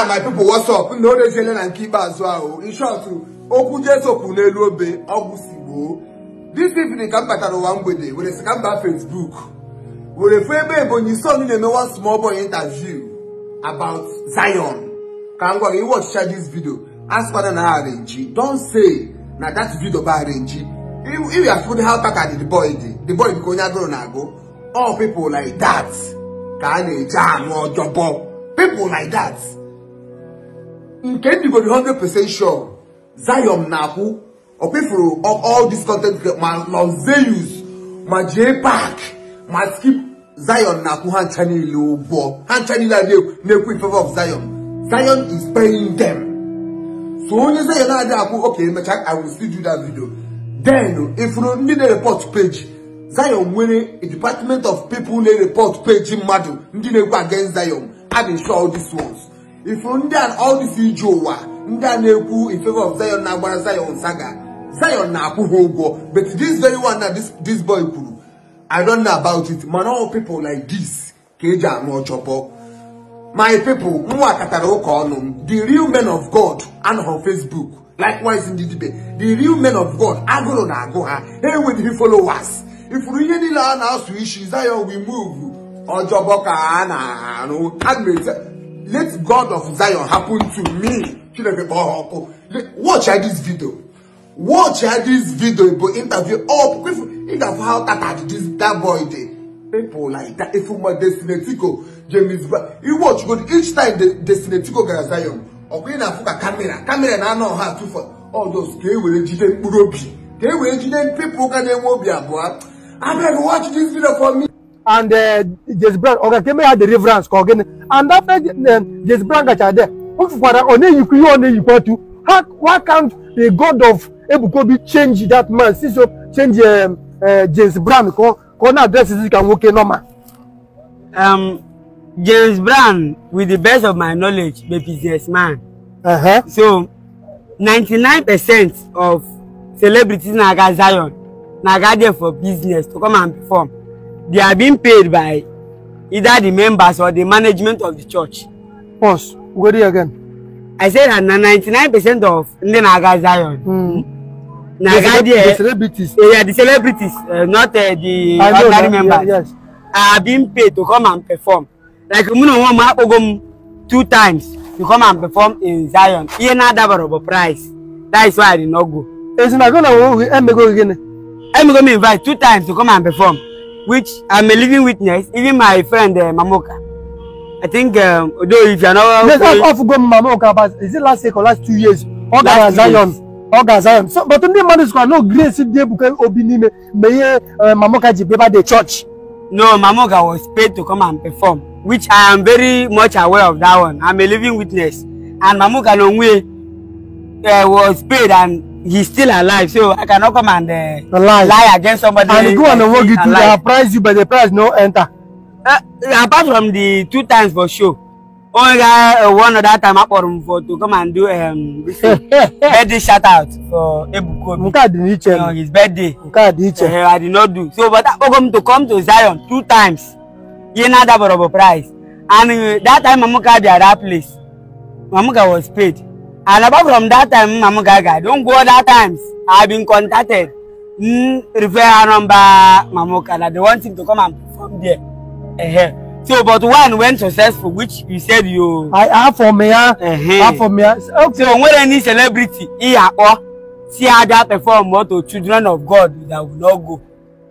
now ah, my people what's up no dey jele na keep as well in short okwu jesu kwu n'elu obe ọgwụ si gboo this evening ka m batara ụwa mgbede were si ka m baa facebook were fụ ebe ebonyi son na-eme one small boy interview about zion ka m gwara iwe ọchịcha this video as fada na arrange don say na that video ba arrange if you are how baka the boy dey the boy bụ ka onye agụrụ na-agụ all people like that ka a na-eje anụ ọjọbọ people like that nke ndị go be percent sure Zion na-akwụ ọ kwefuru all this content ma Los Zeus ma jee park ma skip Zion na-akwụ ha ncha niile ụgwọ ha ncha niile a na-ekwu in favor of Zion Zion is paying them so onye Zion na-adị akwụ oke emecha I will still do that video then ifuru ndị na-report page Zion nwere a department of people na-report page mmadụ ndị na-ekwu against Zion I dey show all these ones ifu ndị a ọdịsi ije ụwa ndị a na-ekwu in of Zion na-agbara Zion saga Zion na-akwụ ha ụgwọ but this very one na this boy kwuru I don't know about it mana all people like this ka eji anụ ọchọpọ my people nwa katara ụka ọnụ the real men of God and on Facebook likewise ndị dibe the real men of God agụrụ na agụ ha ha enweghị followers ifuru ihe niile a na-asụ isi Zion we move ọjọbọ ka a na-arụ let God of Zion happen to me. Oh, oh, oh. Watch this video. Watch this video, but interview up. Interview how that this that boy did. People like that. If you want Destinetico, James, you watch good each time the Destinetico guy Zion. Okay, now a camera, camera I know how to for all those. They will educate Gay They will educate people. can't they move? Yeah, boy. I'm going to watch this video for me and uh, Jesse Brown ọ̀gá kí mẹ́yà the reverence kọ̀ gẹ́ni and after uh, Jesse Brown there, dẹ̀ ó fi padà ọ̀nà ìyíkú yóò ọ̀nà ìyíkú ọ̀tú how why can't the God of Ebukobi change that man since o change um, uh, Jesse Brown kọ́ kọ́ náà address this kan wókè normal. Um, James Brown with the best of my knowledge be man. Uh-huh. So ninety-nine percent of celebrities na aga Zion na aga there for business to come and perform they are being paid by either the members or the management of the church. Pause. We go there again. I said that na ninety-nine percent of ndị na-aga Zion. Hmm. na-aga there the celebrities. Uh, yeah, the celebrities uh, not uh, the I ordinary know, members yeah, yes. are being paid to come and perform. Like mụ na onwe m akpọgo m two times to come and perform in Zion. Ihe na-adabara bụ price. That is why I did not go. Ezinago na owo emego gịnị? Emego m invite two times to come and perform which I'm a living witness, even my friend uh, Mamoka. I think, um, although if you're not... Let's not off go Mamoka, but is it last week or last two years? Oga Zion. Oga Zion. So, but ndị mmadụ sịkwa no grace dị ebuka obi n'ime mgbe ihe uh, Mamoka ji beba the church. No, Mamoka was paid to come and perform, which I am very much aware of that one. I'm a living witness. And Mamoka n'onwe uh, was paid and he's still alive, so I cannot come and uh, lie. against somebody. And go and walk you to the price you, but the price no enter. Uh, apart from the two times for sure. Only uh, one other time I for him for to come and do um birthday shout out for Ebukobi. Nka uh, his birthday. Nka uh, I did not do. So but I come to come to Zion two times. He another for price. And uh, that time Mamuka at that place. Mamuka was paid. And apart from that time, Mama Gaga, don't go other times. I've been contacted. Mm, refer number Mama Gaga. They want him to come and perform there. Uh -huh. So, but one went successful, which you said you. I have for me, uh, ah. uh -huh. have for me. Ah. Okay. So, when any celebrity, he or see other perform more to children of God that will not go.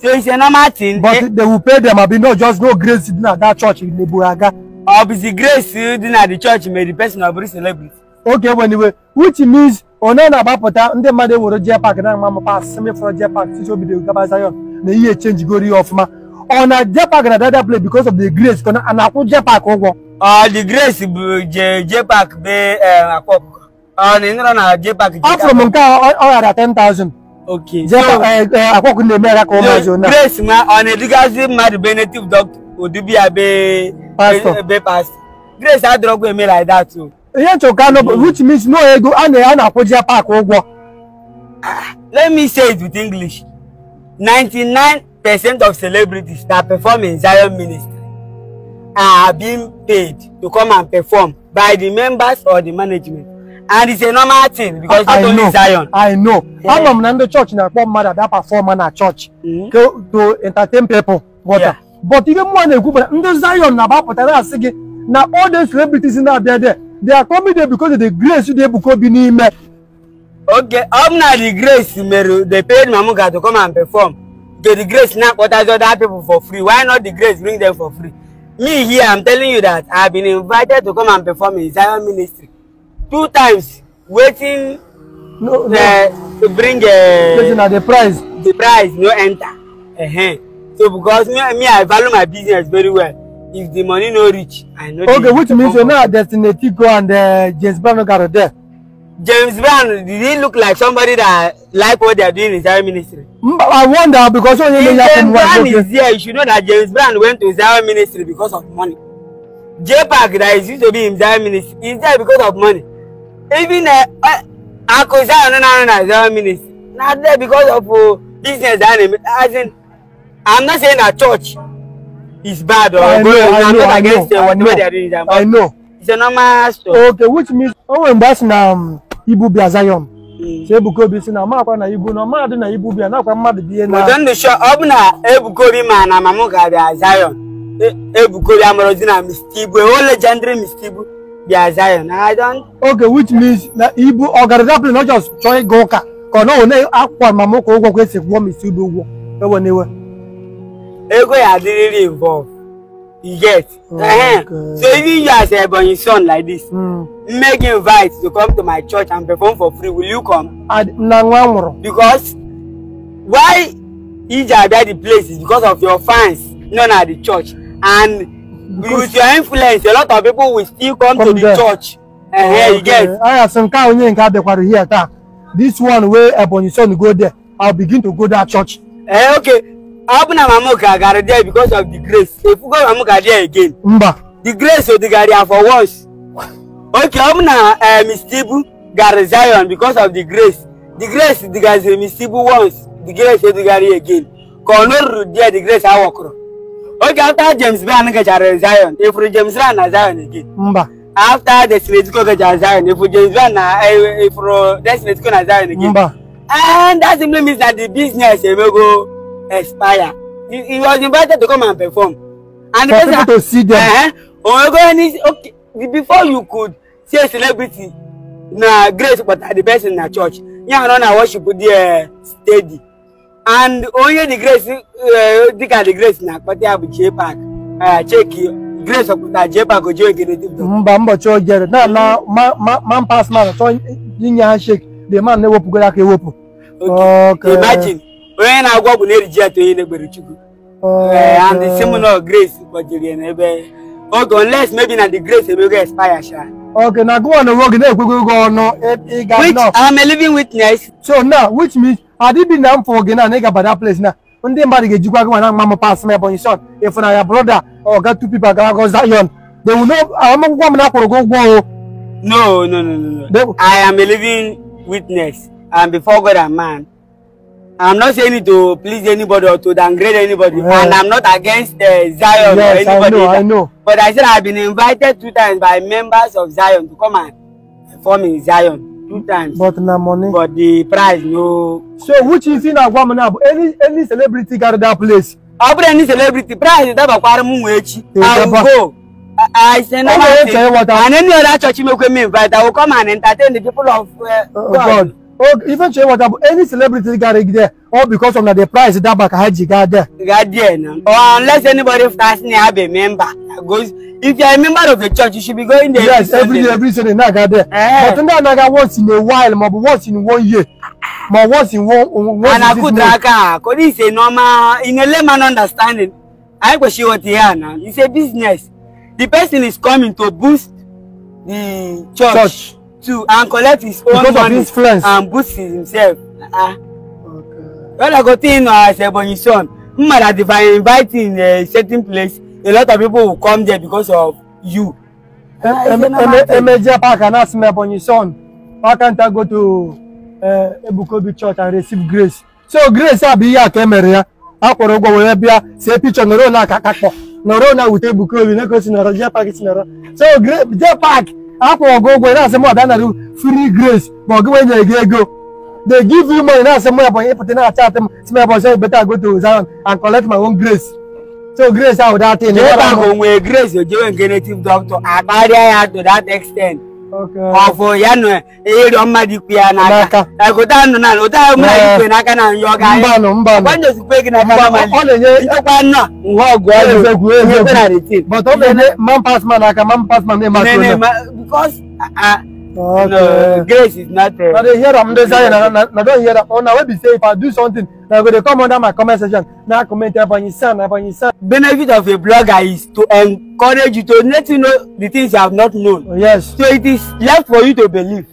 So it's a normal thing. But they, eh? they will pay them. I mean, not just no grace in that church in Neburaga. Or busy grace in the church may the person of celebrity oge egbe n'iwe which means onye na-agbapụta ndị mmadụ ewere jee park na amamapa asịsị mefọrọ jee pak tutu obido gaba Zion na ihe echenjigoro ihe ọfụma ọ na jee pak na dada play because of the grace ka a na-akwụ jee pak ụgwọ ah, the grace bụ eh, ah, jee jee pak bee akwa ọkụkọ ọ fụrụ m nke ọ ghara 10,000 akwa ọkụkọ na-eme ya ka ọ mazi onye grace ma ọ na-edugazi mmadụ be native doctor odubia be pastor grace adịrọgwa eme like that too ihe nchọka no hmm. which means no ego a na a na-akwụji ya ụgwọ ah, let me say it with english 99 percent of celebrities that perform in zion ministry are being paid to come and perform by the members or the management and it's a normal thing because not I only know, Zion. I know. Yeah. Ama m na ndị church na-akpọ mmadụ ada performer na church mm -hmm. to entertain people. Water. Yeah. But ihe mụọ na-ekwu bụ na ndị Zion na-agbapụtara asị gị na all the celebrities na there there they are coming there because of the grace they buko bi n'ime. okay ọ bụ na the grace mere they paid mamu ga to come and perform okay the grace na akpọtazi other people for free why not the grace bring them for free me here i'm telling you that i been invited to come and perform in zion ministry two times waiting no, no. Uh, to bring uh, Listen, uh, the price the price no enter uh -huh. so because me, me i value my business very well if the money no reach i no okay which means say a destiny go and uh, james brown got gather there. james brown did he look like somebody that like what they are doing in zion ministry. i wonder because only lawyer from one go james brown is here. you should know that james brown went to zion ministry because of money J Park that is used to be in zion ministry is there because of money even uh, uh, akosai onana na zion ministry Not there because of uh, business i dey as in i'm not saying that church is bad. Or oh. I, I, know, I, know, I, know, I know. It's a normal story oh. Okay, which means oh, when that's na Ibu Blazayom. So Ebuko bi si na ma akwa na Ibu na ma na Ibu bi na akwa mmadụ ihe na. Don't ndụ sure. ọ bụ na Ebuko ma na Mamụka ga-abịa Zion. E, Ebuko bi na Mr. Ibu, e legendary Mr. Ibu I don't. Okay, which means na Ibu ọ ịga ụka ka ọ one akwa ụgwọ e ego ya dey really involved you get uh-huh. so even you as ebonyi son like this mm. make invite to come to my church and perform for free will you come. na nwa nwụrụ. because why ije abia the place is because of your fans known at the church and because with your influence a lot of people will still come, come to the there. church. Uh, oh, okay. you get. aya sị nke ahụ onye nke adịkwara here taa this one wey ebonyi son go there i begin to go that church. Eh? okay hapụ na Mamuka gara there because of the grace If you go Mamuka there again mba the grace of the ya for once okay ọ bụ na eh, Mistibu gara Zion because of the grace the grace digazi Mistibu once the grace of the ya again ka ọ nọrụrụ there the grace I walk. okay after James Brown gachara Zion efuru James ran a Zion again mba after the Desiletiko gachara Zion efuru James Brown na efuru eh, Desiletiko na Zion again mba and that simply means that the business eh, go expire he, he was invited to come and perform and for people to see them òun go any okay before you could see a celebrity na grace but the person na church yan run na worship there steady and onye the grace dịka eh, the grace na akpata ya bụ jpark eh, cheki grace ọpụta jpark oji ogere mba mbọchị o jere No, no, man pas man So, inye ha shek the man na-ewepụgoro aka ewepụ okay imagine onye na-agwọ ọgwụ na-eriji atọ ihe n'egbere chukwu oh, eh, and seminal grace gbajiri n'ebe oge unless maybe na the grace emego expire sha okay na go on the work na-ekwego oge ọnụ e, ịga which i'm living witness so now which means adịbi na m fọ gị na ị gaba that place na ndị mmadụ ga-ejikwa gị mana mma m pas m ebonyi shot ịfụna ya broda ọga two people agara go zion they will know akwụkwọ m na akwụrụ gị ụgwọ o no no no no i am a living witness and before god and man I'm not saying it to please anybody or to downgrade anybody, yeah. and I'm not against uh, Zion yes, or anybody. I know, I know. But I said I've been invited two times by members of Zion to come and perform in Zion two times. But na money. But the prize no. So which is in Aguamana? Any any celebrity got that place? I'll put any celebrity Prize is that Bakwara which I will go. I say oh, no. And any other church you make me invite, I will come and entertain the people of uh, oh, oh, God. God. Oh, even share water, any celebrity got it there, all because of the price that back Haji got there. Got there, no. Or unless anybody starts have a member goes. If you're a member of the church, you should be going there. Yes, every day, every Sunday, Now got there. Eh. But now I got once in a while, but once in one year. But once in one, once and in I could draka. Could he say normal in a layman understanding? I go see what he now. It's a business. The person is coming to boost the church. church too and collect his own money and boost himself. Uh-uh. Okay. When I go to uh, as Ebonyi son, hmm, I invite in a eh, certain place, a lot of people will come there because of you. Eh, ah, eh, Emeje Park and ask me Ebonyi son, why can't I go to Ebukobi church and receive grace? So grace abi ihe aka emere ya, a kwụrụ ụgwọ wee bịa see picture nọrọ na aka akakpọ nọrọ na wute Ebukobi na-egosi nọrọ Jee Park si nọrọ. So Jee Park akwụrụ gị ụgwọ ị na-asị m ọbịa narị free grace ma ọ gị nwee nyere gị ego they give you money na-asị m ya ị pụta na-acha atị m si m ya bọchị beta go to Zion and collect my own grace so grace ahụ dat in. Ebe ahụ nwere grace ojewe nke native doctor akparịa ya to that extent. ọfụ ya nọ ịrịọ e mmadụ ikwu ya n'aka ụta nọ na ụta mmadụ ikwu n'aka na nyọ ga anyị gị na kpọ mmadụ ịchekwa nọ nha ọgụ egwu egwu but ọ na-enye man pass man aka man pass man Okay. No, grace is not there. Now they hear am dey say Now don't hear that. Oh, now when we say if I do something, now when they come under my comment section. Na comment Evanyisan, Evanyisan. Benefit of a blogger is to encourage you to let you know the things you have not known. Oh, yes. So it is left for you to believe.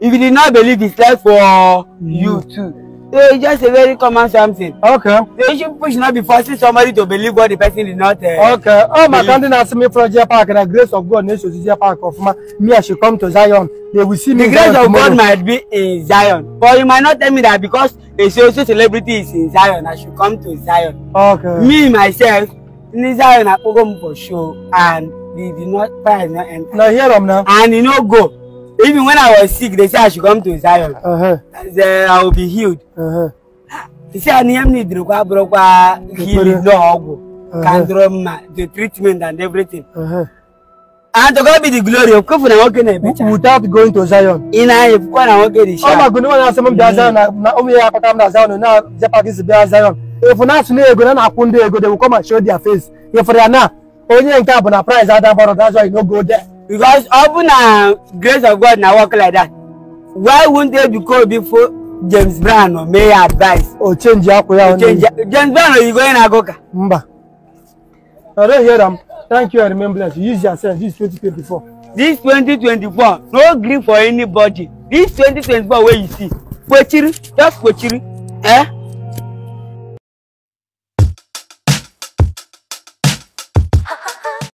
If you did not believe, it's left for mm. you too. It's just a very common something. Okay. They should push not be forcing somebody to believe what the person did not. Uh, okay. Oh, my country asked me from Jia Park and the grace of God needs to Jia Park of ma. Me, I should come to Zion. They will see me. The grace Zion of tomorrow. God might be in Zion, but you might not tell me that because a social celebrity is in Zion, I should come to Zion. Okay. Me myself, in Zion, I go for show and the, did not find not enter. Now hear them now. And you know go even when i was sick they said i should come to zion uh -huh. and i will be healed uh-huh. They said I need to go kwa bụrụ kwa healing na uh-huh. ọgwụ the treatment and everything uh -huh. and to God be the glory of kofu na without going to zion ị na-anya kwukwa na nwoke dị shaa ọ magụ nwa na-asị m zion Now ụmụ ya akpata m na zion na jepagis bịa zion efu na-asụ na ego na na-akwụ ndị ego they will come and show their face ịfụrụ ya na onye nke a bụ na prize ada mkpọrọ that's why you no go there because open na grace of god na work like that why wouldn't they be called before james brown or may advice. o change akwa ya onye james brown oyibo onye na-agụ ka. mba i don hear am thank you and remembrance use yourself. sense this twenty twenty four. this twenty twenty four no gree for anybody this twenty twenty four wey you see kwechiri just kwechiri. Eh?